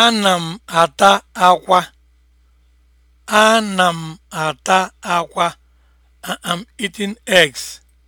Ana m ata akwa. Ana m ata akwa. I am eating eggs.